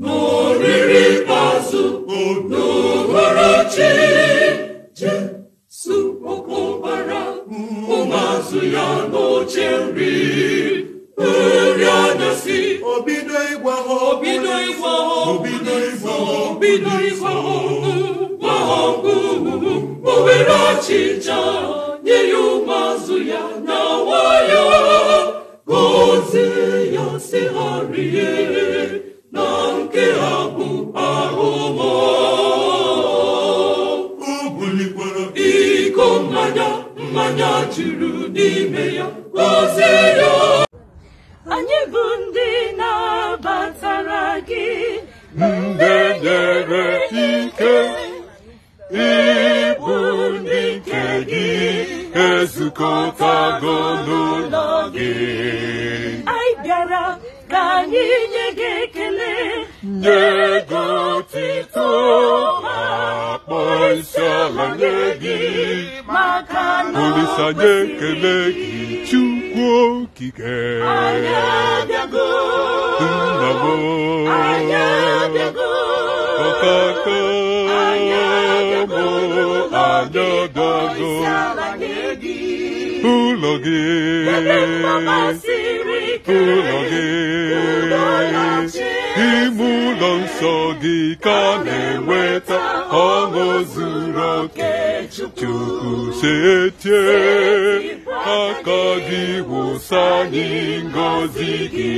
n'oriri ikpeazụ n'uhuruchi Jesu okwu ọbara ụmụazụ ya n'oche nri nri anyasị obido ịgwa ha obido ịgwa ha obido na nwayọọ gozie ya sị ịhụnanya juru n'ime ya ozi ya anyị bụ ndị na na-abatara gị ndị nyere ike ịbụ ndị nke gị ezukọtago n'ụlọ gị anyị bịara ka anyị nye gị ekele nye gị isiala nye gị olise ekele gị chukwu okike nnabo ọkaka bụ anyagago ụlọ gị ụlọ gị iso ka na enweta ọṅụ zuru oke chukwu setie aka gị wụsa anyị ngozi gị